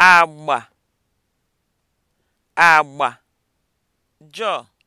agba agba joy